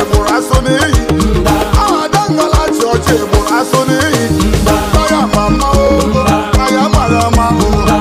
egburu asụ n'iyi aha dangala chị ọcha egburu asụ n'iyi aya ma mmanwụ aya mara mmanwụ